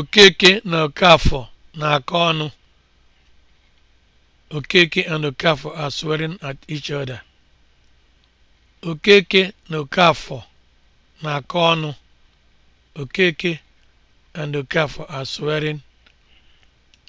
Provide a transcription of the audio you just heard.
Okeke na Okafor na-akọ ọnụ. Okeke and Okafor are swearing at each other.